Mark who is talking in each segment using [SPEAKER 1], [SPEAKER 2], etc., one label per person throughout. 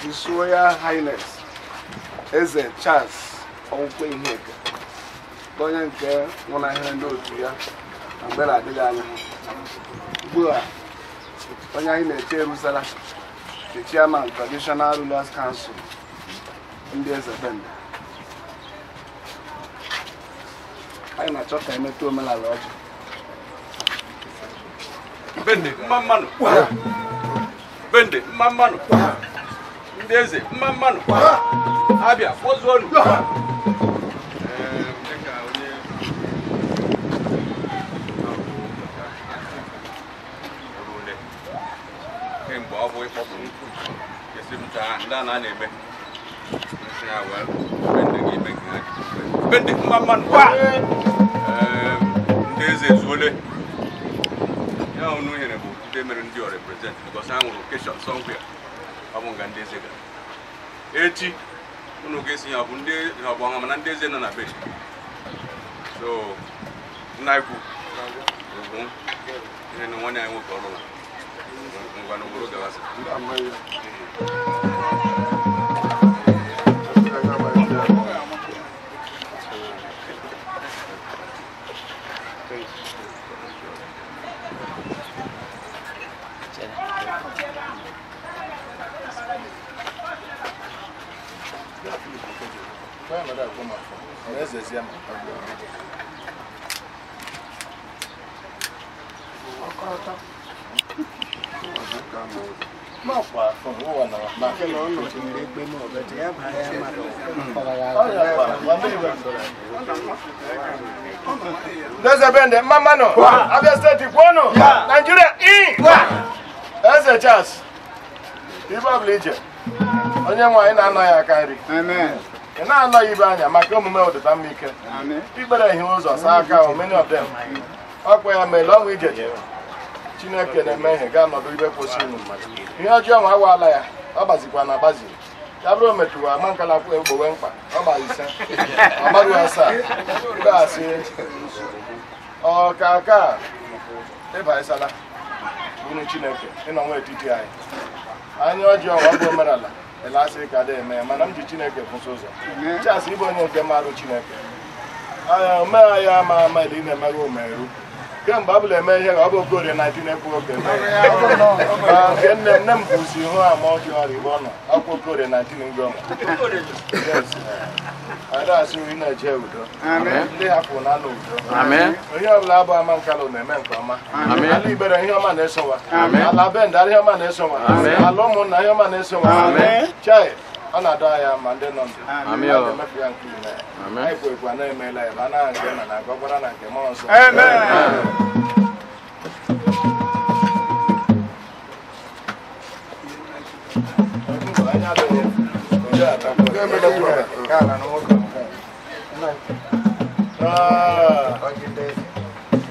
[SPEAKER 1] His Royal Highness Eze Charles ihe Iheka onye nke nwụnahịrị ndị otu ya na mgbe na-adịghị anya ugbu a onye anyị na-eche eruzela the chairman traditional rulers council ndị eze benda anyị na-achọ ka emetụ omenala ọjọọ
[SPEAKER 2] bende mma mmanụ bende mma mmanụ ndị eze mma mmanụ abịa kpọzuo ọrụ kemgbe ọ bụ ịkpọpụ nkụ esi m taa ndị a na-eme ndị mma mmanụ ehm, ndị eze ezuole ya unu nyere bụ ndị mere ndị ọ reprezent because ha nwụrụ keshọn somewhere ọ bụ ndị eze gara echi unu ga-esi ya bụ ndị ọgbọ ha mana ndị eze nọ na be so nna ikwu ugwu ihe na nwanne anyị nwoke ọrụ ngwa n'obodo gawasa
[SPEAKER 3] ezezie na Eze Charles, Ibe ọbụla ije, onye nwe na-anọ aka nri. ị na anọghị ibe anya maka omume ọdịda mma ike ikpere ihe ụzọ saa aka many of ọkwa ya mere ọnwụ ije chineke na-eme ihe ga-anọdụ ibe kwụsịrị ihe ọjọọ nwa awaala ya ọ gbazikwa na agbazi ya bụrụ metụrụ ama nkala kwụ egbowe mkpa ọ gbazi ise ọ gbaghị asaa ibe asị ọka ka ịbaisala unu chineke ịnọ nwa etiti anyị anya ọjọọ ọ bụ omenala asị ka dị eme mana m ji chineke kwụsị ụzọ asịrị ịbụ onye nke marụ chineke aha omegha ya ama ama ị na-emeghị omeru kemgbe abụla eme ihe ka ọ bụ okorie 19 ekwu oke nke nne nne m bụzi ihu ama ọjị ọrịa igbo nọ ọkwa okorie 19 ngoma adasị nri na-eje udo ndị hapụ na anụ udo ihe ọbụla abụ ama nkalụ na-eme nke ọma ala ibere ihe ọma na-esowa ala bendara ihe ọma na-esowa ala ụmụnna ihe ọma na-esowa chai ọ na-adọ ma ndị nọ ndụ emefu ya nke ile anyị bụ egwu anaghị emeela ya ma anaghị nke nna na nke na nke mmụọ nsọ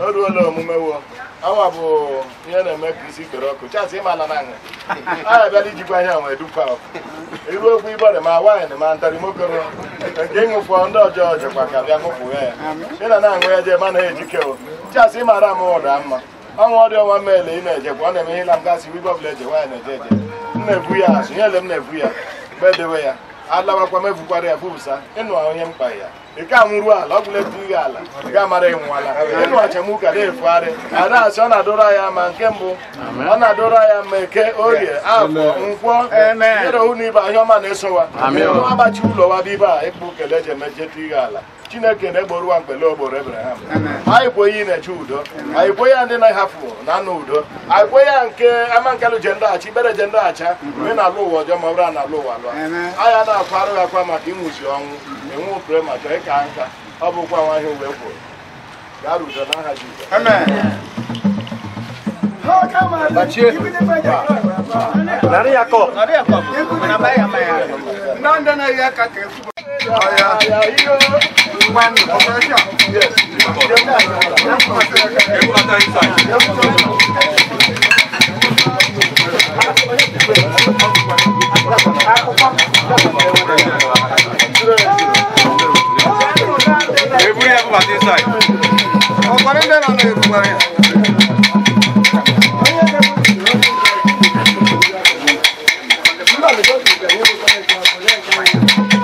[SPEAKER 3] o ruola omume wo awa bụ ihe na-eme ka isi kpere ọkụ chasị ịmala na nha a abịala ijikwa ihe nwe dupa iru okwu igbere ma na ma ntarimokoro nke ịṅụfọ ndị ọjọọ jekwa ka bịa ya ị na na-aṅụ ya jee ma na ejike chasị ịmara m ụda mma ọnwa ọdị ọnwa meele ị na-ejekwa ọ na-eme ihe na m gasị ibe ọbụla eje nwaanyị na-eje eje m na-ebu ya azụ nyele m na-ebu ya mgbe edewe ya alabakwa ebukwara ya bụsa ịnụ onye mkpa ya ike anwụrụ ala ọ bụla ebu ala ga-amara ịnwụala ịnụ achamuka na-efugharị ada asị ọ na-adọrọ ya ma nke mbụ ọ na-adọrọ ya ma eke orie afọ nkwọ ịrọhụ na ibe ahịa ọma na-esowa abachi ụlọ wa bụ ibe a ịkpụ kele eji emejetu ihe ala chineke na-egboro ụwa mkpele ogboro ebraham anyị bụ onye na-eche udo anyị bụ ya ndị na-ahafụ na anụ udo anyị ya onye nke amankelụ je ndọghachi ibere je ndọghacha onye na-alụ ụwa ọjọọ ma ọ na alụ ụwa lụọ anyị na-akwa arụ gị akwa maka ịnwụzi ọnwụ enwe pụrụ ma chọọ ịka nka ọ bụkwa nwa ihe uwe kwuru gaa udo n'aha Jizọs Nari
[SPEAKER 4] yako. Nari yako.
[SPEAKER 5] Namba ya maya. Nanda na ya kake. Aya.
[SPEAKER 3] One operation. Yes.
[SPEAKER 2] Everybody have what inside.
[SPEAKER 1] Oh, what is that on
[SPEAKER 5] the àlejò ìgbẹ̀wò ló fẹ́ẹ́ gbà pẹ̀lú ẹ̀ka wọn.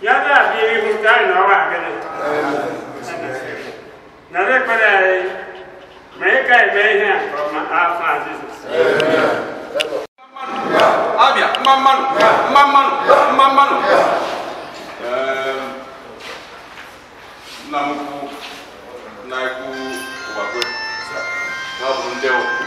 [SPEAKER 2] yada bi ebi ho taa na ɔwɔ agɛnɛ na bɛ kpɛ dɛ ayi mɛ yi ka yi mɛ yi hɛn ɔma afa adi so. abia mmamanu mmamanu mmamanu na ekwu ụgbagwe na ọ bụ ndị ọkụ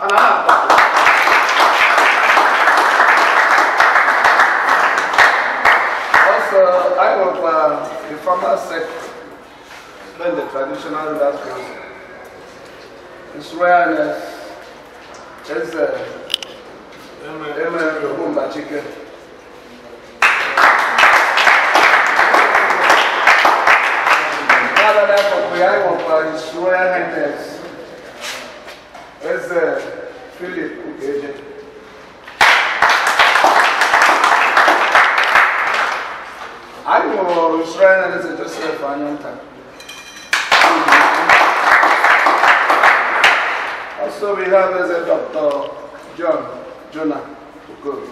[SPEAKER 1] Ana ah. Also, I was uh, the former sect when the traditional leaders His Royalness is uh, Emma Rumba Chicken. Father, therefore, we uh, are of His that's uh, Philip Ugeje. I will shrine and it's just a final time. Also, we have as a Dr. John Jonah Ugobi.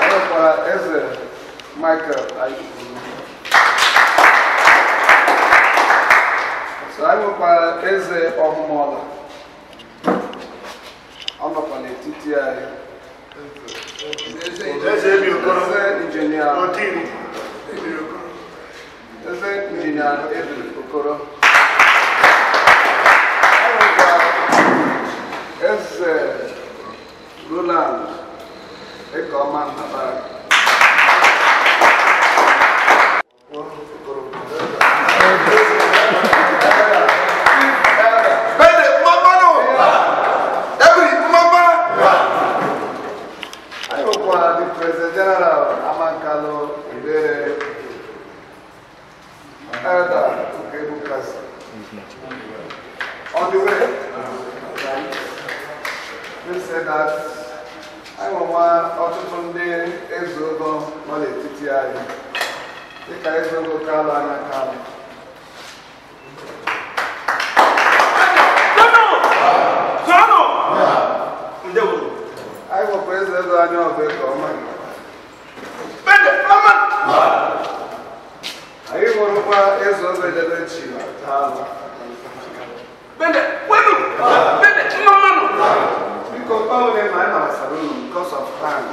[SPEAKER 1] And as a uh, Michael Ayubu. nakwa eze ọmụmụọla ọ nọkwa n'etiti anyị eze injinia eze injinia ebiri okoro eze roland ekeọma nnabara anyị enwenwa ọtụtụ ndị eze nọ n'etiti anyị dịka eze kalụ anya kalụ anyị nwekwa eze ego anya nke ọma anyị nwụrụkwa eze chi na all of them are Barcelona because of crime.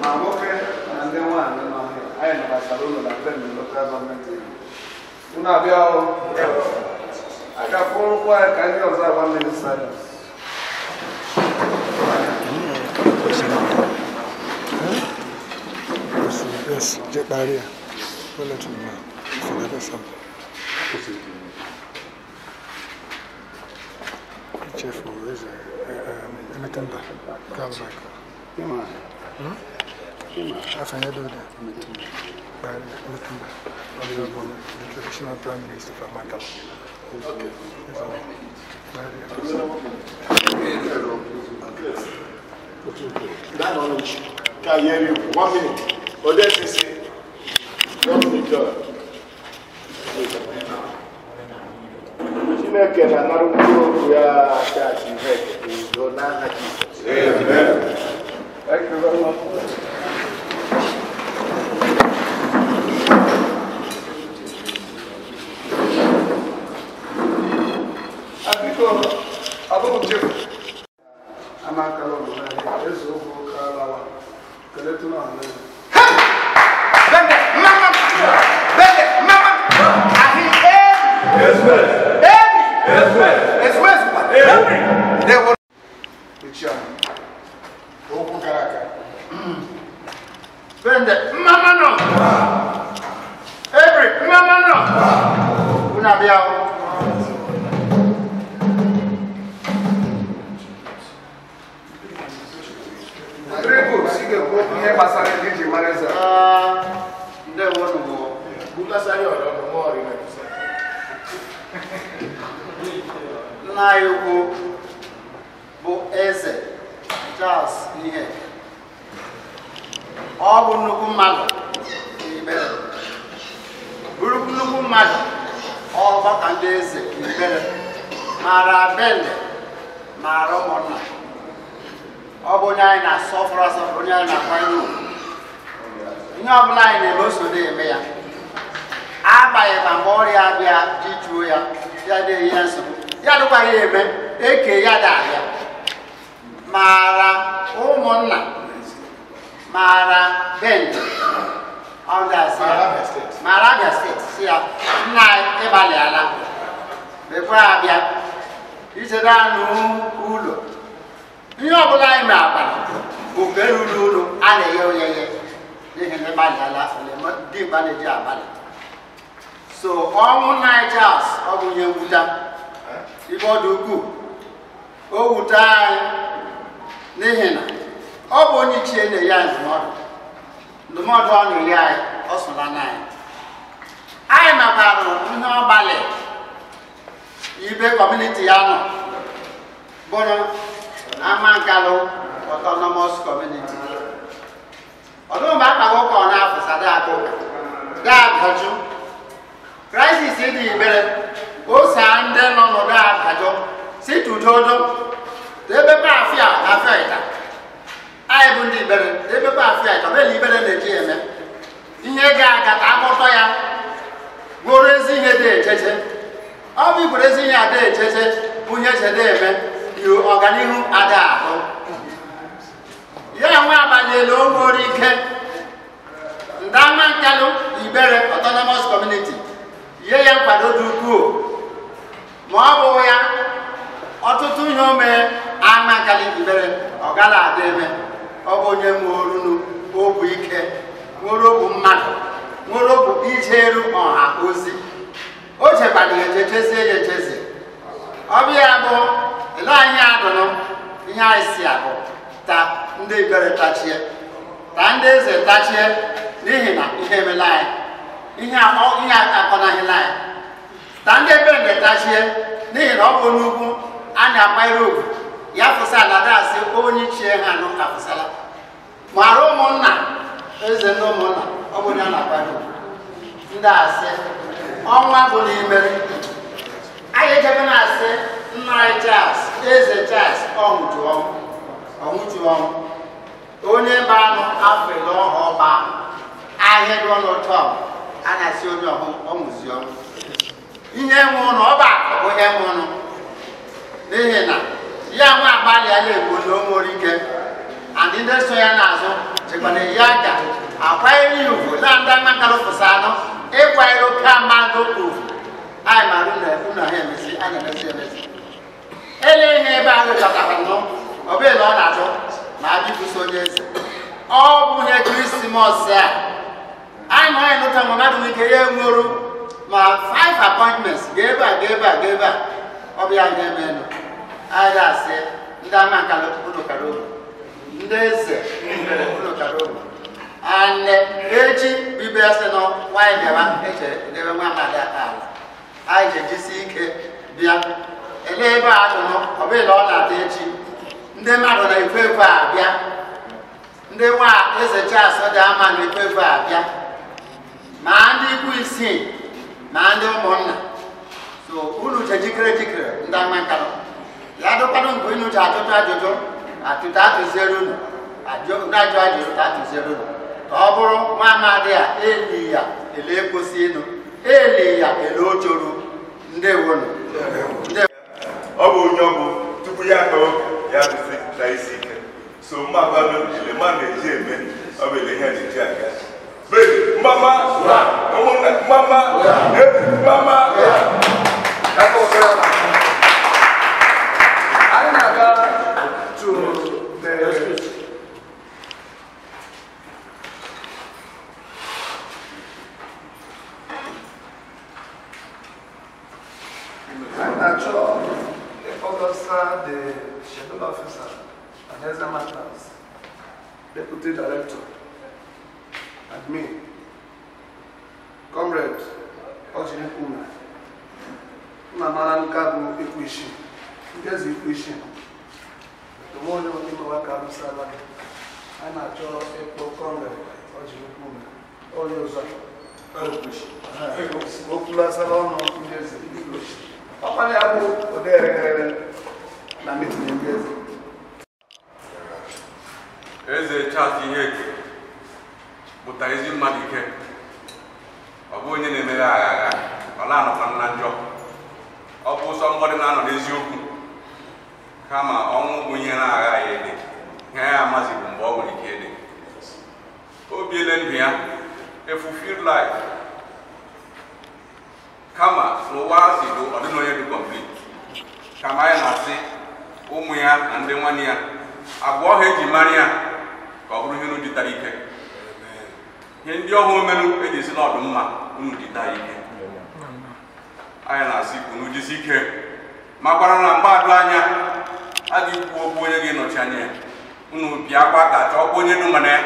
[SPEAKER 1] My worker and then one, you know, I am Barcelona, but then the local government. You know, we all. I can follow why can you observe one
[SPEAKER 2] minute silence?
[SPEAKER 1] Yes, get by here. We'll let you know. Forget something. is it?
[SPEAKER 3] Metimba, Kalmak. Hmm?
[SPEAKER 1] Yema. Yema. Afanya doda, Metimba. Bari, Metimba. Honorable, the traditional prime minister of Makala. That
[SPEAKER 3] knowledge can hear you. One minute. Odessisi. Chineke na-anara mkpụrụ okwu ya aka achị ihe your name Jesus. Amen. Thank
[SPEAKER 1] you very much. Africa, I don't
[SPEAKER 6] maara bele mara ụmụnna ọ bụ na-asọpụrụ onye anyị na-akwanye ugwu ọbụla anyị na-eme oso na-eme ya agbaghị ma mgbe ọrịa bịa ya ya na-eyi ya nsogbu ya dịkwara ya eme eke ya da maara mara ụmụnna mara abịa steeti si ya nna ịgbalịala abịa ichere anụ ụlọ ihe ọbụla anyị na abalị bụ mgbe ruru ụlọ a na-eghe oyeye n'ihi na ịgbalịala dị Igbo na-eji abalị so ọnwụ Nigeria ọ bụ ihe nwuta ibe ọ dị ukwuu o wute anyị n'ihi na ọ bụ onye ichie na-enye anyị ndụmọdụ ndụmọdụ ọ na-enye anyị ọ anyị mabarụ ihe ọ ibe kọmuniti ya nọ bụrụ ama nkalụ autonomous community ọdụmgbe akpaghị ụka ọ na-afụsa daabụ daabajụ krisis dị ibere ose ndị nọ n'ụdọ abajụ si tudodo debepe afịa afia ịta anyị bụ ndị ibere debepe afịa ịta ọ bụla ibere na-eji eme echeche bunye chedeme ọganihu ada ahụ ya nwe abanyela onwere ike ndama nkalụ ibere autonomous community ye ya nkwado dị ukwuu ma ọ bụghị ya ọtụtụ ihe ome mee ama nkalị ibere ọ gara ada eme ọ bụ onye nwerunu obu ike nwere obu mmadụ nwere obu ijeru ọha ozi o chekwara ya echechezie ya echezi ọbịa bụ ele anyị adụrụ ihe anyị si ahụ ta ndị ibere tachie ta ndị eze tachie n'ihi na ihe emela anyị ihe ihe akọnahịla anyị ta ndị ebere nde tachie n'ihi na ọ bụ n'ugwu a na-akwanyere ugwu ya fụsa na dasị onye chie ha nụ afụsala mara ụmụnna eze ndị ụmụnna ọ bụ onye a na-akwanyere ugwu ndị asị ọnwa bụ n'ime anyị ejebe na-asị nna anyị Charles eze Charles ọnwụjuọnwụ onye banụ afrịla ọha ọba ahịa dị ọnụtọ a na-asị onye ọnwụziọnwụ ihe nwe ụlọ ọba bụ ihe nwe ụlọ n'ihi na ya nwe agbalịala egbo na onwere ike andị ndị so ya n'azụ chekwana ya ga akwa ya ugwu na ndị makara ụfụsa anụ ịkwanyere oke mmadụ ugwu anyị maara unu ahụ emezi anyị emezi emezi ele ihe ebe anyị chọtara nọ ọ bụghị na ọ na-achọ ma anyị bụso onye eze ọ bụ ihe krismas a anyị na anyị nụta ma mmadụ n'ike ya enwuru ma five appointments ga ebe a ga a ga a ọ bụ ya ihe emenụ Ahịa asị ndị ama nkala unu kara ndị eze unu kara oru and echi bụ ibe sị nọ nwaanyị bịara eche edebe nwa mmadụ aka ala anyị ga-ejisi ike bịa elee ebe a atụnụ ọbụla ọ na-ata echi ndị mmadụ na-ekwe a bịa ndị nwa eze Charles dị ama na-ekwe a abịa ma ndị ikwu isii ma ndị ụmụnna so unu je jikere jikere ndị ama nkanụ ya dụkwanụ mgbe unu ji atụtụ ajụjụ atụta atụziere unu ajụ ajụjụ ta atụziere unu ka ọ bụrụ nwa amadi a eli ya ele kwụsị ịnụ
[SPEAKER 3] eli ya ele ojoro ndị ọ bụ onye ọbụ tupu ya tọọ ya na isi ike so mmabalụ elema na-eji eme ọ bụ ele ihe na-eji aga bedi mmama mmama ebu mmama
[SPEAKER 2] ụmụ ya na ndị nwanne ya agwa ha eji mara ya ka ọ bụrụ ihe unu ike ihe ndị ọhụụ omenụ eji esi n'ọdụ mma unu dịta ike anyị na-asị unu ike ma gwara na mgbadụ anya a ga-ekwu okwu onye ga-enọchi anya ya unu bịakwa ka chọọkwa onye dị mana ya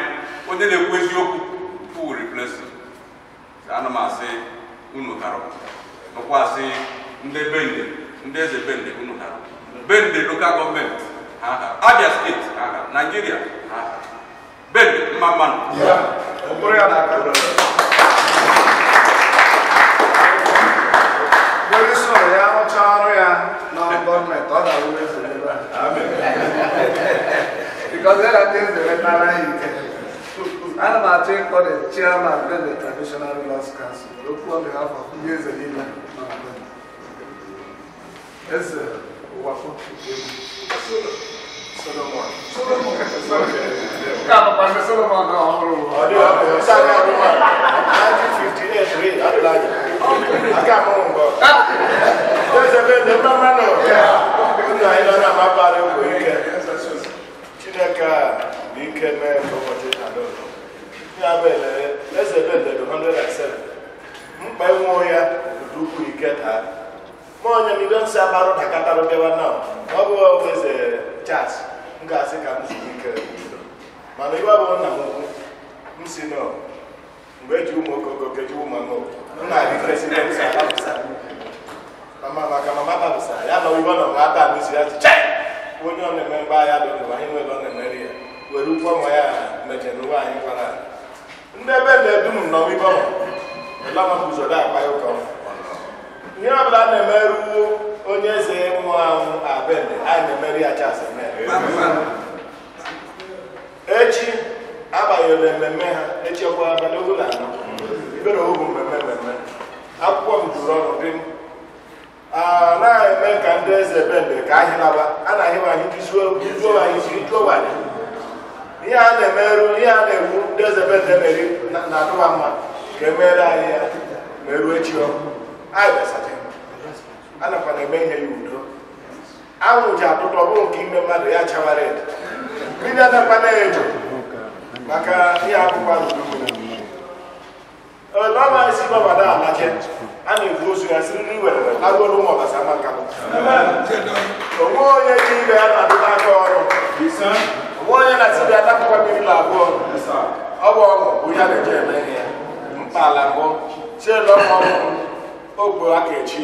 [SPEAKER 2] onye na-ekwu eziokwu full riplesi ana m asị unu karọ nụkwasị ndị bende ndị eze bende unu karọ Bend the local government. Uh-huh. Abia State, uh-huh. Nigeria. Uh-huh. Ah. Bend Maman. Yeah.
[SPEAKER 1] Onye sọrọ ya rụchaa ọrụ ya na gọọmenti, ọ ga-awụ efu ebe a. Because there are things that are not right. Ana m achọ ịkpọ the chairman of the traditional rulers council okwu on behalf of ndị eze niile nọ na Eze wafo solomon solomon ká pàṣẹ solomon náà ọhún rò. ọdún ọdún sáré ọdún wa nineteen fifty eight rí àtúláyé
[SPEAKER 3] àti àmọ́wọ̀n bọ̀. ṣé ṣe ṣe mẹ́mẹ́ nù nínú àyínlá náà má bá rẹ̀ wò ike chineke ah! a ní ike mẹ́rin fọwọ́tì àlọ́ ní abẹ́lẹ̀ ẹsẹ̀ bẹ́ẹ̀ lẹ́nu hundred and seven mkpa hmm, ịnwụ ya dị ukwu ike taa mọnyam ibe nsị abarụ dakatara bịawa na ọ bụ weze chat m ga-asị ka m zuru ike mana iwe abụọ nna m ukwu m si nọ mgbe eji ụmụ okoko keji ụmụ anụ m na-adị president alabụsa mama maka mama babụsa ya nọ iwe nọ nwa ata n'isi ya chiche onye ọ na-eme mgbe ahịa dị n'ụwa anyị nwere ọ na-emeri ya were ụkwụ ọma ya meje n'ụwa anyị kwara ndị ebe na-edu m nọ ibe ọma ụlọ maka ụzọ dị akpa ya ụka ọma ihe ọ bụla a na-emeru onye eze nwụrụ anwụ abene anyị na-emeri ya echi abanyere mmemme ha echekwa abalị ogu na anọ ibere ogu mmemme mmemme akwụkwọ m juru ọnụ dị na eme ka ndị eze bende ka anyị A na-ahịwa anyị izuo anyị isi juo anyị ihe a na-emeru ihe a na-egbu ndị eze bende meri na-atụwa mma ka emere anyị ya meruo echi ọkụ anyị besata na eme ihe ya udo anwụ ji atụtụ ọbụrụ nke ime mmadụ ya chawara edo mmiri anakwana edo maka ihe akwụkwọ ọma a na-ebu ozu ya si nri were ụmụ ọbasa maka onwe onye ji ibe ya na-adụta aka ọrụ onwe onye na-etibi adapụkwa mmiri na abụọ ọ bụ ọgụ bụ ya na-eje eme ihe mkpa ala bụ chielu ọgụ ogwe aka echi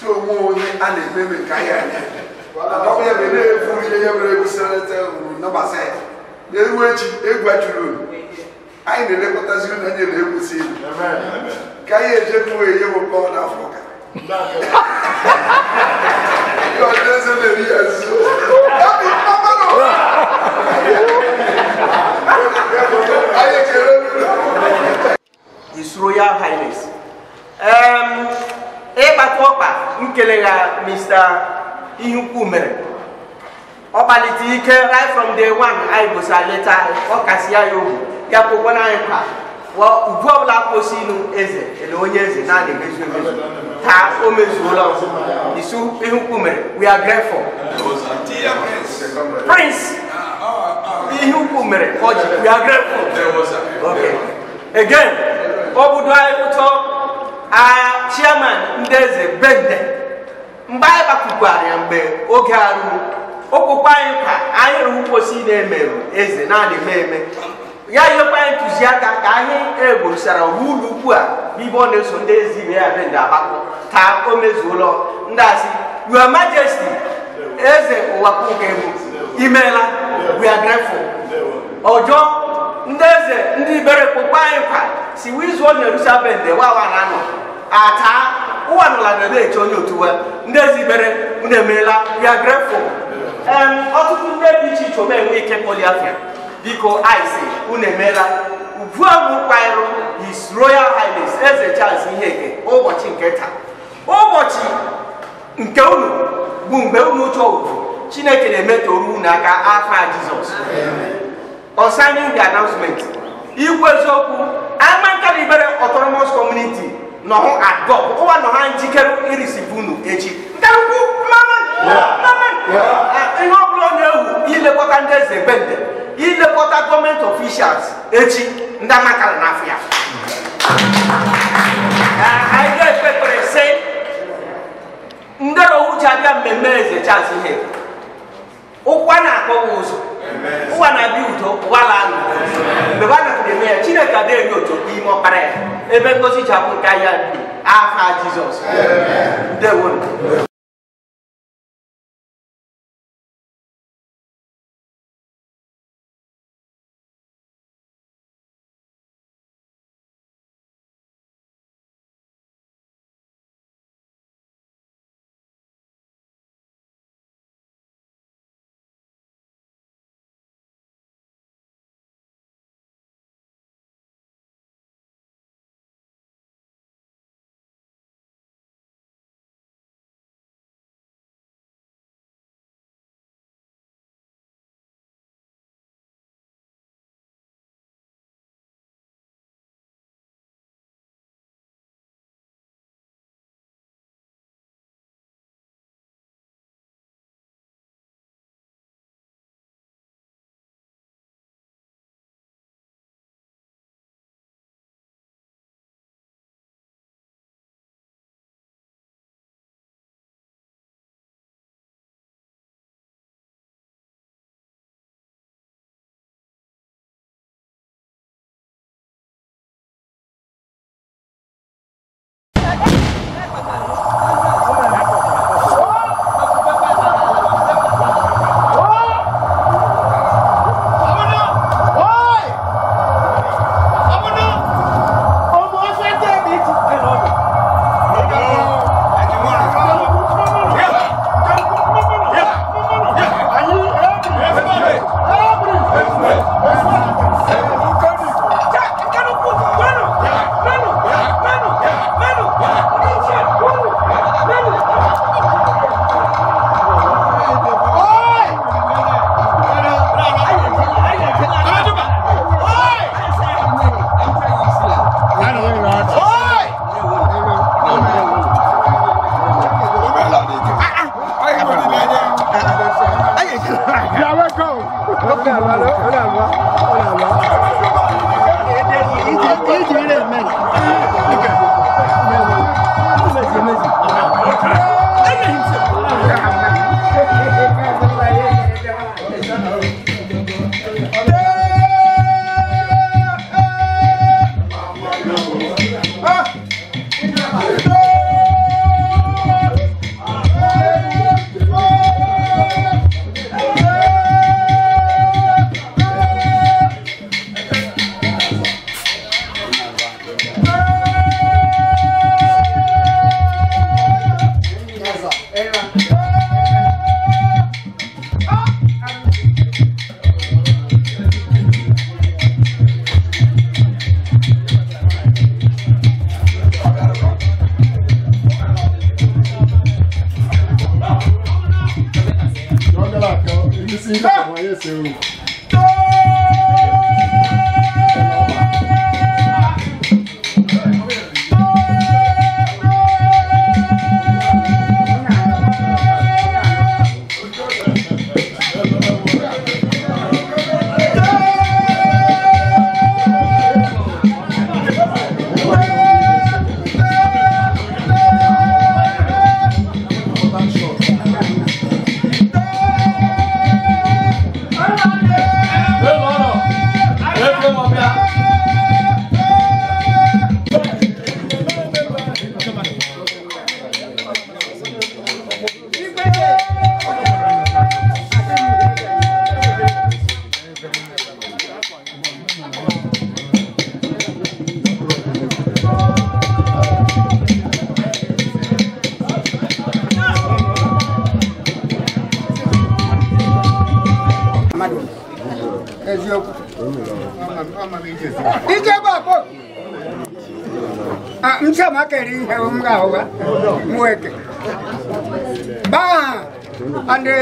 [SPEAKER 1] tu onwe onye a na-eme eme nke anyị anya ya bụ na-ebu ihe ya mere egwu uru ya na-ewu echi egwu ajụrụ anyị na-elekọtazi unu anya na egwu ilu ka anyị eje bụ bụ kpọọ n'afọ ụka na
[SPEAKER 4] ya Highness. Um, ịkpata ọkpa nkele ya mr ihukwu mere ọ kpalite ike right from day one anyị gosa leta ọ kasị ya ya obu ya kwụkwana anyị kwa ugwu ọbụla kwụsị eze ele onye eze na-adị emezu emezu taa o mezuola isu ihukwu mere we are grateful prince ihukwu mere ọ we are grateful okay again ọ anyị ụtọ agha chairman ndị eze bende mgbe anyị gbapụkwara ya mgbe oge a ruru anyị ka anyị rụrụ mposi na-emerụ eze naanị eme ya ntụziaka ka anyị eborosara ụlọ ukwu a n'ibe ọ na-eso ndị eze ibe ya bende ka o ndị asị your majesti eze imeela we are ndị eze ndị ibere anyị kwa si wizuo Jerusalem wawa ata ụwa na na-eche onye otuwe ndị ezibere unu emeela ya are grateful ọtụtụ ndị dị iche iche omenwe ike poliafia biko ise unu emeela ubuabụ kwairu his royal highness eze charles iheke ụbọchị nke taa ụbọchị nke unu bụ mgbe unu chọọ chineke na oru unu aka afa jizọs on signing the announcement ikwu eziokwu amankaribere Otoromo's community nɔho agɔ koko wa nɔho anji kɛ irisi bunu ekyi nkaluku maman maman ah, ihe ọbụla ọ na-ewu ilekọta ndị eze gbende ilekọta gọọmenti ọfishals echi ndị amaka na afịa ah, anyị ga-ekpekpere sị ndero uche abịa mmemme eze chaz ihe ụwa na-akpọwa ụzọ ụwa na-abịa udo ụwa laa n'udo mgbe ha napụrụ eme ya chineke adịghị otu n'ime ọkpara ya ebe ngozi ji abụ nke ahịa
[SPEAKER 2] afa jizọs ndewo
[SPEAKER 5] है उमगा होगा मुए के बा अंडे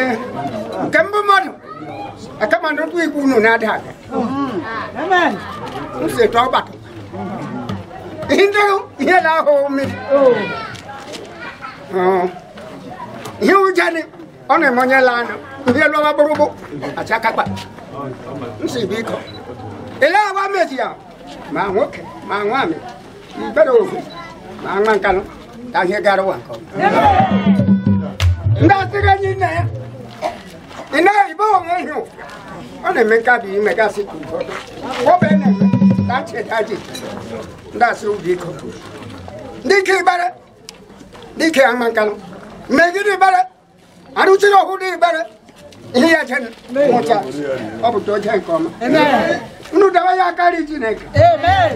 [SPEAKER 5] कंब मत अकम अंडे तू इकु नो ना ढाके आमेन उसे तो बात इंद्र ये ला हो मी ये उजाने one monye lano ye lo baburubu achaka kwa nsibiko ele awa mesia ma nwoke ma nwami ibere ofu Angman kanu, tanghe garuan kau. Enggak tega ni na ya. Eh. Ina ibu orang oh, eh, oh. itu, na mereka bi mereka si oh, eh. tu. Kau benar, tangce tangce, n'a suruh dia kau. Ni ke ibarat, ni ke angman kanu. Mereka ni ibarat, anu ciro aku Ini ah, ya chen, mocha, apa chen Amen. dawa ya kari Amen.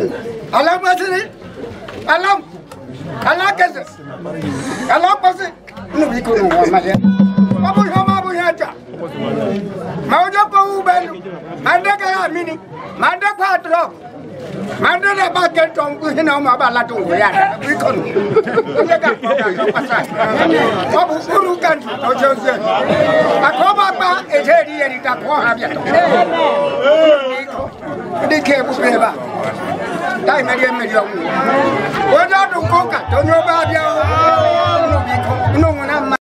[SPEAKER 5] Alam alágbàsílẹ̀ alá alákẹsẹ̀ alákọsẹ̀ níbi kò ní wọn máa yẹ. ọmọ yẹn máa bọ̀ yẹn jà màá jẹ́ kó wú bẹ́ẹ̀ lù màá dẹ́kẹ́ yà mí ni màá dẹ́kọ̀ àtúrọ̀ màá dẹ́kẹ́ bá kẹ́ tọ́ nkú yín náà máa bá aládùn wò yà rẹ̀ bí kò ní. ilé ká kọ́ ká kọ́ pàṣẹ. ọ̀bù kúrú kàndì ọjọ́ ṣe. àkọ́bà gba èdè èdè yẹn ní takọ́ hàn bíyà. ní kí ẹ bú bẹ́ẹ̀ bá. တိုင်းမ
[SPEAKER 2] ရမရောဝါဒတို့ကောကတော်တော်ပါပြောင်းလို့ဒီကောနုံနာ